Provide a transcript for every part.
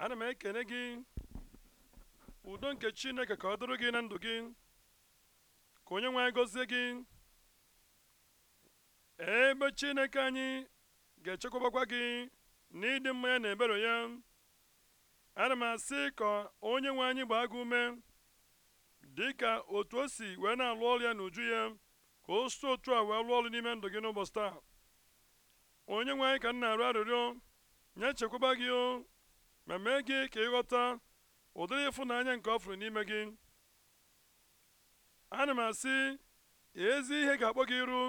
ana m ekene gị udo nke chineke ka ọ dụrụ gị na ndụ gị ka onye nwe anyị gọzie gị ebe chineke anyị ga-echekwabakwa gị ịdị mma ya na ebere ya ana m asị ka onye nwe anyị gbaa gị ume dị ka otu o si wee na-alụ ọrụ ya n'uju ya ka o si otu a wee lụọ ọrụ n'ime ndụ gị n'ụbọchị taa onye nwe anyị ka m na-arụ arịrịọ nye chekwaba gị ma mee gị ka ịghọta ụdịrị ịfụnanya nke ọ fụrụ n'ime gị ana m asị ezi ihe ga-akpọ gị iru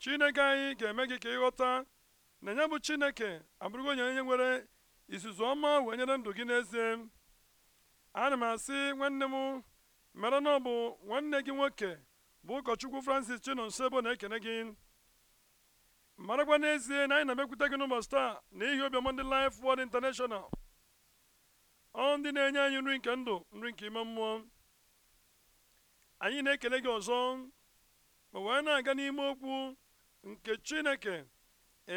chineke anyị ga-eme gị ka ịghọta na ya bụ chineke abụrụgo onye onye nwere izuzu ọma wee nyere ndụ gị n'ezie ana m asị nwanne m mere na nwanne gị nwoke bụ ụkọchukwu francis chinonsebo na-ekene gị marakwa n'ezie na anyị na-emekwute gị n'ụbọchị taa n'ihi obiọma ndị Life Word International ọ ndị na-enye anyị nri nke ndụ nri nke ime mmụọ anyị na-ekele gị ọzọ ma wee na-aga n'ime okwu nke chineke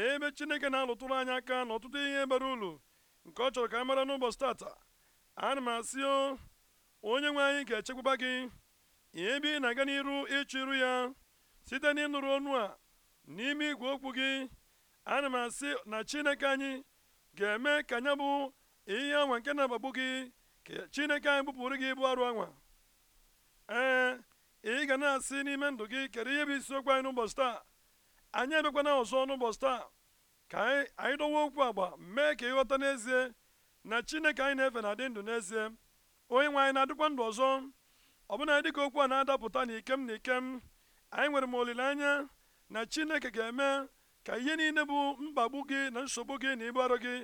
ebe chineke na-alụtụrụ anyị aka na ọtụtụ ihe bara ulu nke ọ chọrọ ka a mara n'ụbọchị tata ana m asị o onye nwe anyị ga-echekwaba gị ebe ị na-aga n'iru ịchụ iru ya site n'ịnụrụ ọnụ a n'ime igwe okwu gị ana m asị na chineke anyị ga-eme ka anya bụ ihe anwa nke na-agbagbu gị ka chineke anyị bụpụrụ gị ịbụ arụ anwa ee ị ga na-asị n'ime ndụ gị kedu ihe bụ isiokwu anyị n'ụbọchị taa anyị abịakwana ọzọ n'ụbọchị taa ka anyị dọwa okwu agba mee ka ịghọta n'ezie na chineke anyị na-efe na-adị ndụ n'ezie onye nwe anyị na-adịkwa ndụ ọzọ ọbụna dịka okwu a na-adapụta n'ikem n'ikem anyị nwere m olileanya na chineke ga-eme ka ihe niile bụ mkpagbu gị na nsogbu gị na ịbụ arụ gị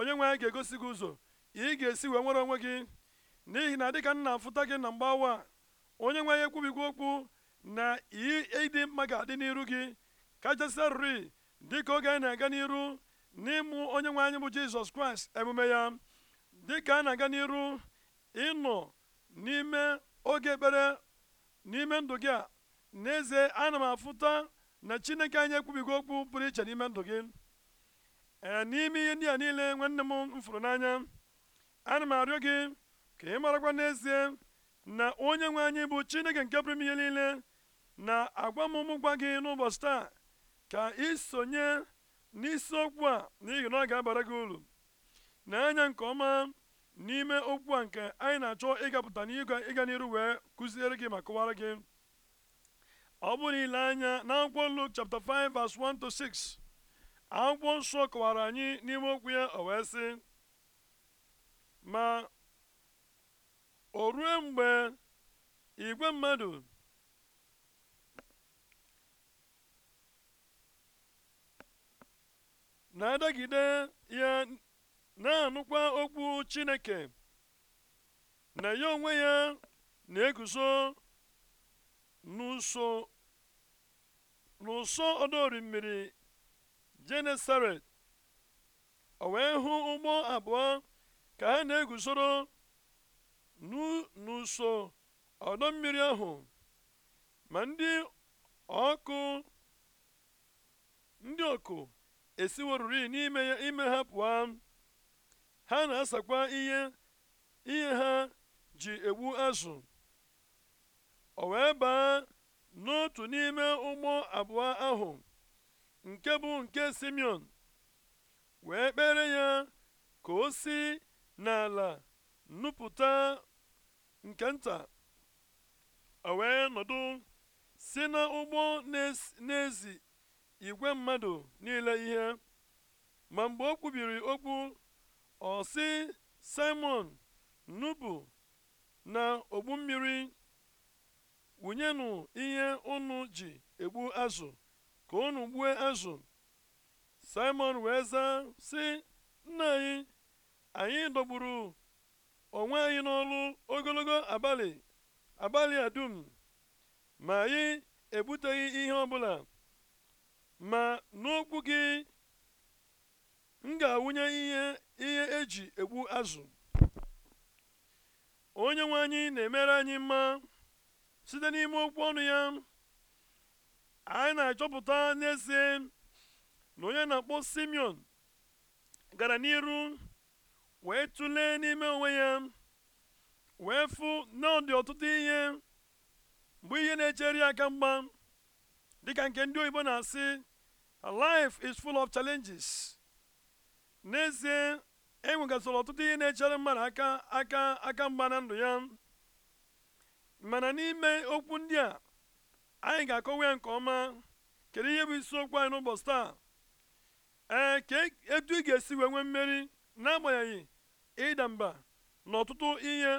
onye nwe anyị ga-egosi gị ụzọ ị ga-esi wee nwere onwe gị n'ihi na dịka nna afụta gị na mgbawa onye nwe anyị ekwubigwo okwu na ịdị mma ga-adị n'iru gị kachasịarịrị dịka oge anyị na-aga n'iru n'ịmụ onye nwe anyị bụ jizọs kraịst emume ya dịka a na-aga n'iru ịnọ n'ime oge ekpere n'ime ndụ gị a n'ezie ana m afụta na chineke anyị ekwubigo okwu pụrụ iche n'ime ndụ gị Eh, n'ime ihe ndị a niile nwanne m m fụrụ n'anya ana m arịọ gị ka ị marakwa n'ezie na onye nwe anyị bụ chineke nke pụrụ ihe niile na agwamụmụ gwa gị n'ụbọchị taa ka isonye sonye n'isiokwu a n'ihi na ọ ga-abara gị uru na-anya nke ọma n'ime okwu a nke anyị na-achọ ịgapụta n'igwe ịga n'iru wee kụziere gị ma kụwara gị ọ bụrụ ile anya na akwụkwọ Luk 5 verse 1 to 6 akwụkwọ nsọ kọwara anyị n'ime okwu ya o wee sị ma o rue mgbe igwe mmadụ na-adagide ya na-anụkwa okwu chineke na ya onwe ya na-eguzo n'ụsọ n'ụsọ mmiri Genesaret o wee hụ ụgbọ abụọ ka ha na-eguzoro n'ụsọ ọdọ mmiri ahụ ma ndị ọkụ ndị ọkụ esiworuri n'ime ya ha pụọ ha na-asakwa ihe ha ji egbu azụ o wee baa n'otu n'ime ụgbọ abụọ ahụ nke bụ nke simeon wee kpere ya ka o si n'ala nnupụta nke nta o wee nọdụ si n'ụgbọ n'ezi igwe mmadụ niile ihe ma mgbe o kwubiri okwu ọ si simon nubu na ogbu mmiri wụnyenụ ihe unu ji egbu azụ ka unu gbue azụ simon wee zaa sị nna anyị anyị dọgburu onwe anyị n'ọlụ ogologo abalị abalị a ma anyị ebuteghị ihe ọbụla ma n'okwu gị m ga-awụnye ihe ihe eji egbu azụ onye nwe anyị na-emere anyị mma site n'ime okwu ọnụ ya anyị na-achọpụta n'ezie na onye na-akpọ simeon gara n'iru wee tụlee n'ime onwe ya wee fụ na ọ ọtụtụ ihe mgbe ihe na-echere aka mgba dịka nke ndị oyibo na-asị life is full of challenges n'ezie enwegasịrị ọtụtụ ihe na-echere mmadụ aka aka aka mgba na ndụ ya mana n'ime okwu ndị a anyị ga-akọwa ya nke ọma kedu ihe bụ isiokwu anyị n'ụbọchị taa ee ka e, etu ị ga-esi wee nwee mmeri n'agbanyeghị ịda mba na ọtụtụ ihe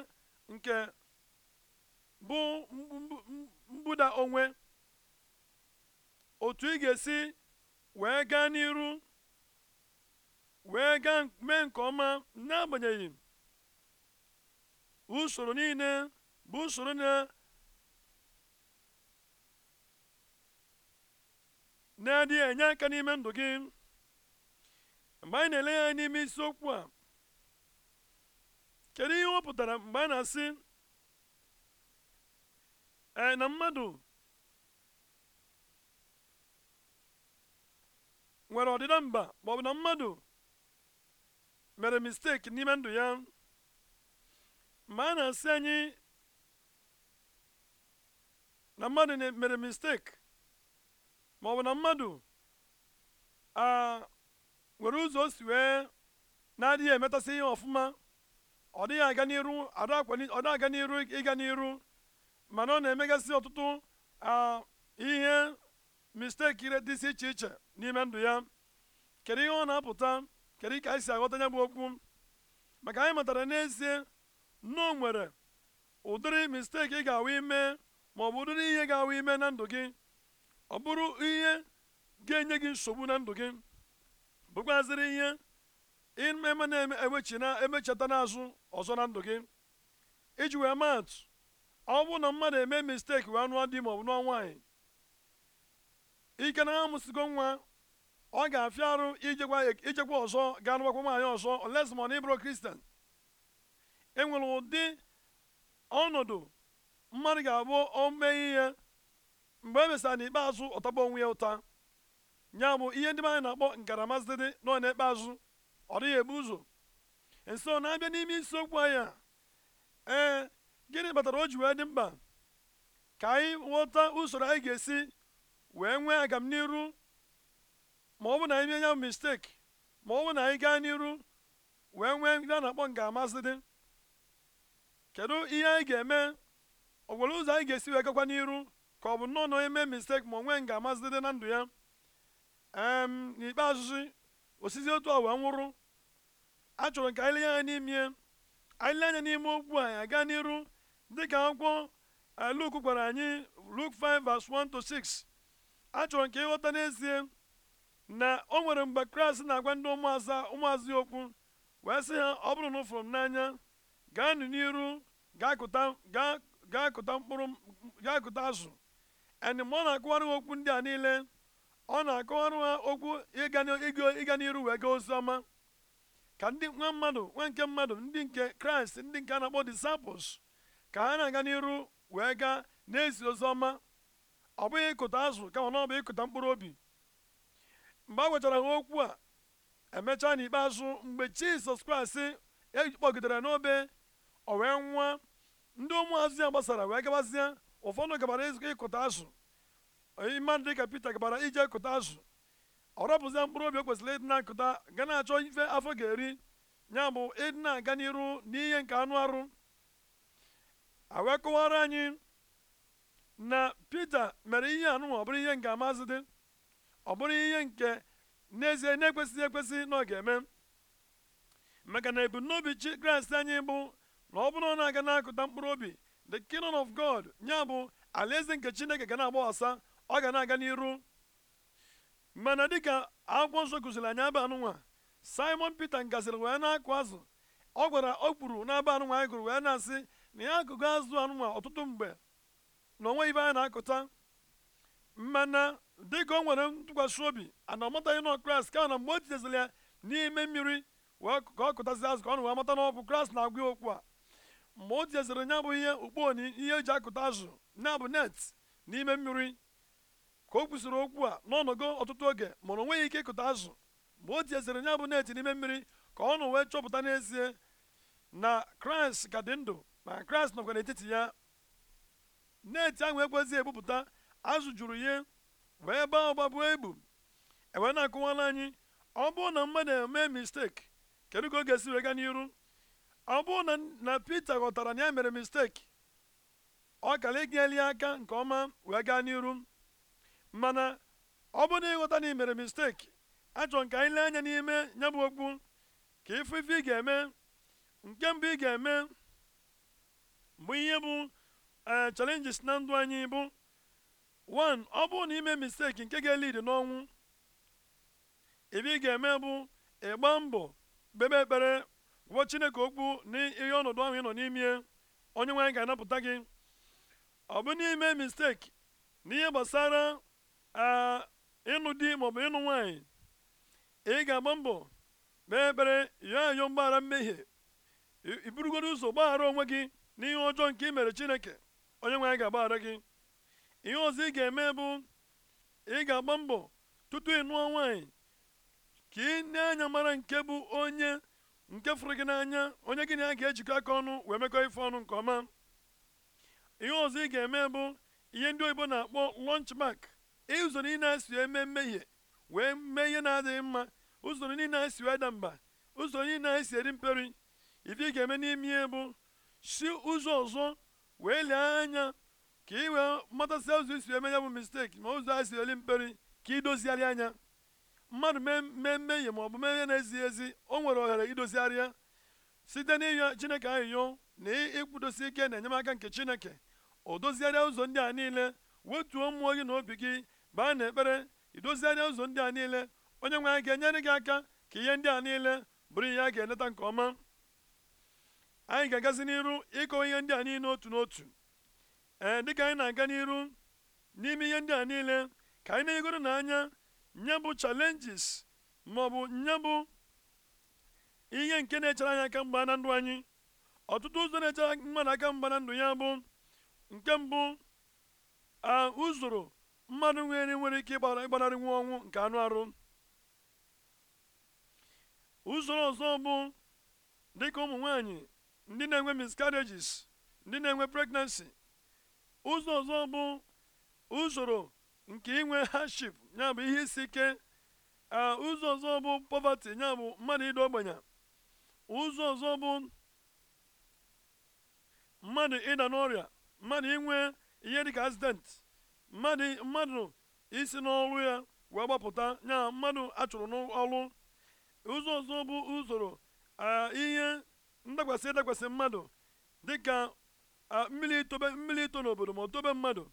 nke bụ mbụda onwe otu ị ga-esi wee gaa n'iru wee gaa mee nke ọma n'agbanyeghị usoro niile bụ usoro na na-adịghị enye aka n'ime ndụ gị mgbe anyị na-ele ya n'ime isiokwu a kedu ihe ọ pụtara mgbe a na-asị ee na mmadụ nwere ọdịda mba ma ọ na mmadụ mere mistake n'ime ndụ ya mgbe a na-asị anyị na mmadụ mere mistake. ma ọ bụ na mmadụ a nwere ụzọ o si wee na-adịghị emetasị ihe ọfụma ọ dịghị aga n'iru ọ dịghị aga n'iru ịga n'iru mana ọ na-emegasị ọtụtụ ihe misteki si iche iche n'ime ndụ ya kedu ihe ọ na-apụta kedu ka anyị si aghọta ya bụ okwu maka anyị matara n'ezie nnọọ nwere ụdịrị misteki ị ga-awa ime ma ọ bụ ụdịrị ihe ga-awa ime na ndụ gị ọ bụrụ ihe ga-enye gị nsogbu na ndụ gị bụkwazịrị ihe eme na-eme ewechina emechata n'azụ ọzọ na ndụ gị iji wee maatụ ọ bụrụ na mmadụ eme misteki wee nụọ di maọbụ nụọ nwaanyị ike na ha amụsigo nwa ọ ga-afịa arụ ijekwa ọzọ ga nụbakwa nwaanyị ọzọ olesma na ịbụrụ kristian enwere ụdị ọnọdụ mmadụ ga-abụ o ihe mgbe e mesịrị n'ikpeazụ ọtọba onwe ya ụta nya bụ ihe ndị anyị na-akpọ nkaramazidede nọ n'ikpeazụ ọ dịghị ebu ụzọ nso e na-abịa n'ime isiokwu anyị anya, ee gịnị kpatara o ji wee dị mkpa ka anyị ghọta usoro anyị ga-esi wee nwee agamniru ma ọ bụ na anyị mee ya misteki ma ọ bụ na anyị gaa n'iru wee nwee ndị a na-akpọ nkaramazidede kedu ihe anyị ga-eme ọ ụzọ anyị ga-esi wee gakwa n'iru ka ọ bụ nnọọ na onye mee ma onwe nga amazidede na ndụ ya em n'ikpeazụ osizi otu ọwa nwụrụ achọrọ ka anyị lenye anya n'ime anyị lenye anya n'ime okwu anyị aga n'iru dịka akwụkwọ eh, Luk gwara anyị Luk 5 verse 1 to 6 achọrọ nke ịghọta n'ezie na o nwere mgbe Kraịst na-agwa ndị ụmụaza ụmụazị okwu wee sị ha ọ bụrụ na ụfụrụ m n'anya gaanụ n'iru gaa kụta mkpụrụ gaa kụta azụ and ọ na-akụwara ha okwu ndị a niile ọ na-akọwara ha okwu ịga n'iru wee gaa oziọma ọma ka ndị nwa mmadụ nwa nke mmadụ ndị nke kraịst ndị nke a na-akpọ disciples ka ha na-aga n'iru wee gaa na-ezi ozi ọma ọ bụghị ịkụta azụ kama na ọ bụ ịkụta mkpụrụ obi mgbe a gwechara ha okwu a emechaa n'ikpeazụ mgbe jizọs kraịst ekpọgidere n'obe o wee nwa ndị ụmụazụ ya gbasara wee gabazie ụfọdụ gabara ịkụta azụ onye mmadụ dịka Pita gabara ije kụta azụ ọ rọpụzie mkpụrụ obi o kwesịrị ịdị na-akụta ga na-achọ ife afọ ga-eri ya bụ ịdị na-aga n'iru n'ihe nke anụ arụ awee anyị na Pita mere ihe anụ ọ bụrụ ihe nke amazị dị ọ bụrụ ihe nke n'ezie na-ekwesịghị ekwesị na ọ ga-eme maka na ebumnobi chi Kraịst anyị bụ na ọ bụrụ na ọ na-aga na-akụta mkpụrụ obi the kingdom of god nya bụ alaeze nke chineke ga na-agbaghasa ọ ga na-aga n'iru mana dịka akwụkwọ nsọ kụziri anyị aba anụnwa simon peter ngaziri wee na-akụ azụ ọ gwara ọ kpuru n'aba anụnwa anyị gụrụ wee na-asị na ya akụgo azụ anụnwa ọtụtụ mgbe na onwe ibe anyị na-akụta mana dịka o nwere ntụkwasị obi ana ọmataghị nọ kraịst ka na mgbe o titeziri ya n'ime mmiri wee ka ọ kụtasị azụ ka ọ na wee mata na ọ bụ kraịst na-agwa ya okwu a mgbe o tinyezere nya bụ ihe ukpo ihe eji akụta azụ na bụ net n'ime mmiri ka o kwusịrị okwu a n'ọnọgo ọtụtụ oge mana onwe nweghị ike ịkụta azụ mgbe o tinyezere nya bụ net n'ime mmiri ka ọ nụ wee chọpụta n'ezie na kraịst ka dị ndụ ma kraịst nọkwa n'etiti ya net ahụ ekwezighị ebupụta azụ juru ihe wee baa ụba buo egbu ewee na-akụwala anyị ọ bụrụ na mmadụ eme misteki kedu ka ọ ga-esi wee gaa n'iru ọ bụrụ na peter ghọtara na ya mere misteki ọ kara inyeli aka nke ọma wee gaa n'iru mana ọ bụrụ na ịghọta na ị mere misteki achọrọ nka anyị lee anya n'ime ya okwu ka ifu ifu ị ga-eme nke mbụ ị ga-eme bụ ihe bụ e, challenges na ndụ anyị bụ one ọ bụrụ na ime misteki nke ga-elid n'ọnwụ ebe ị ga-eme bụ ịgba mbọ kpebe ekpere gwa chineke okwu n'ihe ọnọdụ ahụ ị nọ n'ime onye nwe anyị ga-anapụta gị ọ bụ n'ime misteki n'ihe gbasara ịnụ di maọbụ ịnụ nwanyị ị ga-agba mbọ kpee ekpere yọọ ayọ mgbaghara mmehie iburugoro ụzọ gbaghara onwe gị n'ihe ọjọọ nke i mere chineke onye nwe anyị ga-agbaghara gị ihe ọzọ ị ga-eme bụ ị ga-agba mbọ tutu ị nụọ nwaanyị ka ị na-anya mara nke bụ onye nke fụrụ gị n'anya onye gị na ya ga-ejikọ aka ọnụ wee mekọ ife ọnụ nke ọma ihe ọzọ ị ga-eme bụ ihe ndị oyibo na-akpọ lunch mak ụzọ niile na-esi eme mmehie wee mee ihe na-adịghị mma ụzọ niile na-esi ada mba ụzọ niile na-esi eri mperi ife ị ga-eme n'ime ihe bụ si ụzọ ọzọ wee lee anya ka ị wee matasịa ụzọ isi eme ya bụ misteki ma ụzọ a si eri mperi ka ị dozigharị anya mmadụ mee mmehie ma ọ bụ mee ihe na-ezighị ezi o nwere ohere idozigharịa site n'ịyọ chineke ahịyọ na ịkwụdosi ike na enyemaka nke chineke o dozigharịa ụzọ ndị a niile wetuo mmụọ gị na obi gị baa ekpere idozigharịa ụzọ ndị a niile onye nwe anyị ga-enyere gị aka ka ihe ndị a niile bụrụ ihe a ga-eleta nke ọma anyị ga-agazi n'iru ịkọwa ihe ndị a niile otu n'otu ee dịka anyị na-aga n'iru n'ime ihe ndị a niile ka anyị na-egoro n'anya nye bụ challenges ma ọ bụ nye bụ ihe nke na-echere anyị aka mgba na ndụ anyị ọtụtụ ụzọ na-echere mmadụ aka mgba na ndụ ya bụ nke mbụ a uzoro mmadụ nwere nwere ike ịgbanarị nwa ọnwụ nke anụ arụ usoro ọzọ bụ dịka ụmụ nwanyị ndị na-enwe miscarriages ndị na-enwe pregnancy ụzọ ọzọ bụ usoro nke inwe hardship ya bụ ihe isi ike ụzọ ọzọ bụ poverty ya bụ mmadụ ịdị ogbenye ụzọ ọzọ bụ mmadụ ịda n'ọrịa mmadụ inwe ihe dịka accident mmadụ mmadụ isi n'ọrụ ya wee gbapụta ya mmadụ achụrụ n'ọrụ ụzọ ọzọ bụ usoro ihe ndakwasị ịdakwasị mmadụ dịka mmiri itobe mmiri ito n'obodo ma o tobe mmadụ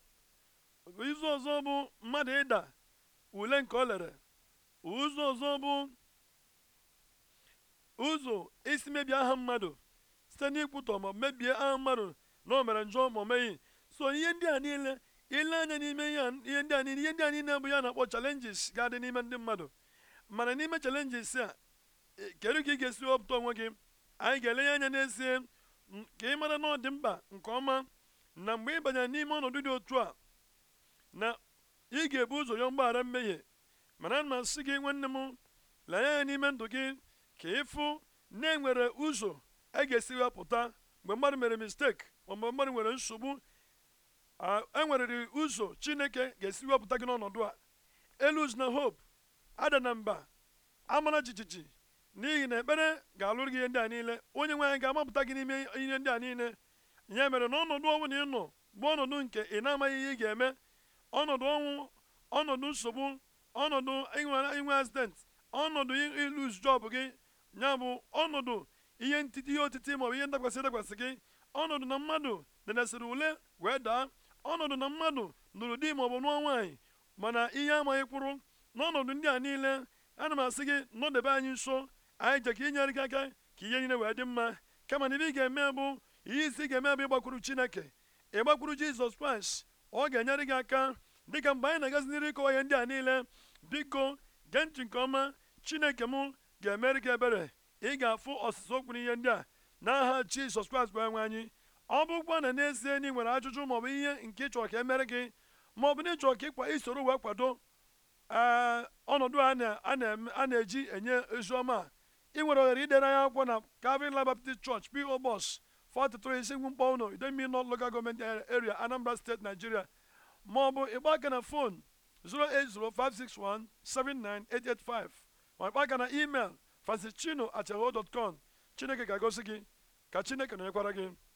ụzọ ọzọ bụ mmadụ ịda ule nke o lere ụzọ ọzọ bụ ụzọ isi mebie aha mmadụ site n'ikwutọ ma mebie aha mmadụ na o mere njọ ma o so ihe ndị a niile ile anya n'ime ihe ndị a niile ihe ndị a niile bụ ya na-akpọ chalenjis ga-adị n'ime ndị mmadụ mana n'ime chalenjis a e, kedu ka ị ga-esi wepụta onwe gị anyị ga-elenye anya n'ezie ka ị mara na ọ dị mkpa nke ọma na mgbe ị banyere n'ime ọnọdụ dị otu a na ị ga-ebu ụzọ ya mgbaghara mmehie mana na asị gị nwanne m lee ya n'ime ndụ gị ka ịfụ na enwere ụzọ a e ga-esi wepụta mgbe mmadụ mere mistake ma mgbe mmadụ nwere nsogbu enwerịrị ụzọ chineke ga-esi wepụta gị n'ọnọdụ a elu na hope ada na mba amara jijiji n'ihi na ekpere ga-alụrụ gị ihe ndị a niile onye nwe anyị ga-amapụta gị n'ime ihe ndị a niile ya mere na ọnọdụ ọbụla ị nọ bụ ọnọdụ nke ị na-amaghị ihe ị ga-eme ọnọdụ ọnwụ ọnọdụ nsogbu ọnọdụ inwe accident ọnọdụ ilus job gị ya bụ ọnọdụ ihe ntiti ihe otiti maọbụ ihe ndakwasị ndakwasị gị ọnọdụ na mmadụ denesịrị ule wee daa ọnọdụ na mmadụ nụrụ di maọbụ nụọ nwaanyị mana ihe amaghị kwụrụ n'ọnọdụ ndị a niile ana m asị gị nọdebe anyị nso anyị je ka inyere gị aka ka ihe niile wee dị mma kama na ibe ị ga-eme bụ ihe isi ga-eme bụ ịgbakwuru chineke ịgbakwuru jizọs kraịst ọ ga-enyere gị aka dịka mgbe anyị na-agazi n'iri ịkọwa ihe ndị a niile biko gee ntị nke ọma chineke m ga-emere gị ebere ị ga-afụ ọsụsụ okwu n'ihe ndị a n'aha jizọs kraịst bụ enwe anyị ọ bụkwa na n'ezie na ị nwere ajụjụ bụ ihe nke ịchọrọ ka emere gị bụ na ịchọrọ ka ịkwa isoro wee kwado eh, ọnọdụ a na-eji enye oziọma ị nwere ohere idere anyị akwụkwọ na kavin Life Baptist Church P.O. 436 Mkpọwụnọ Idemili nọ Local Government Area Anambra State Nigeria maọbụ ịgba aka na fon 08056179885 ma ịgba aka na email com Chineke ga-agosi gị ka Chineke nọnyekwara gị